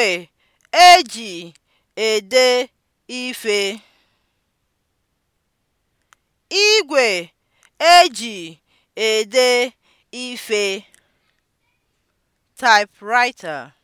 Igwe eji ede ife Igwe e ede ife (typewriter)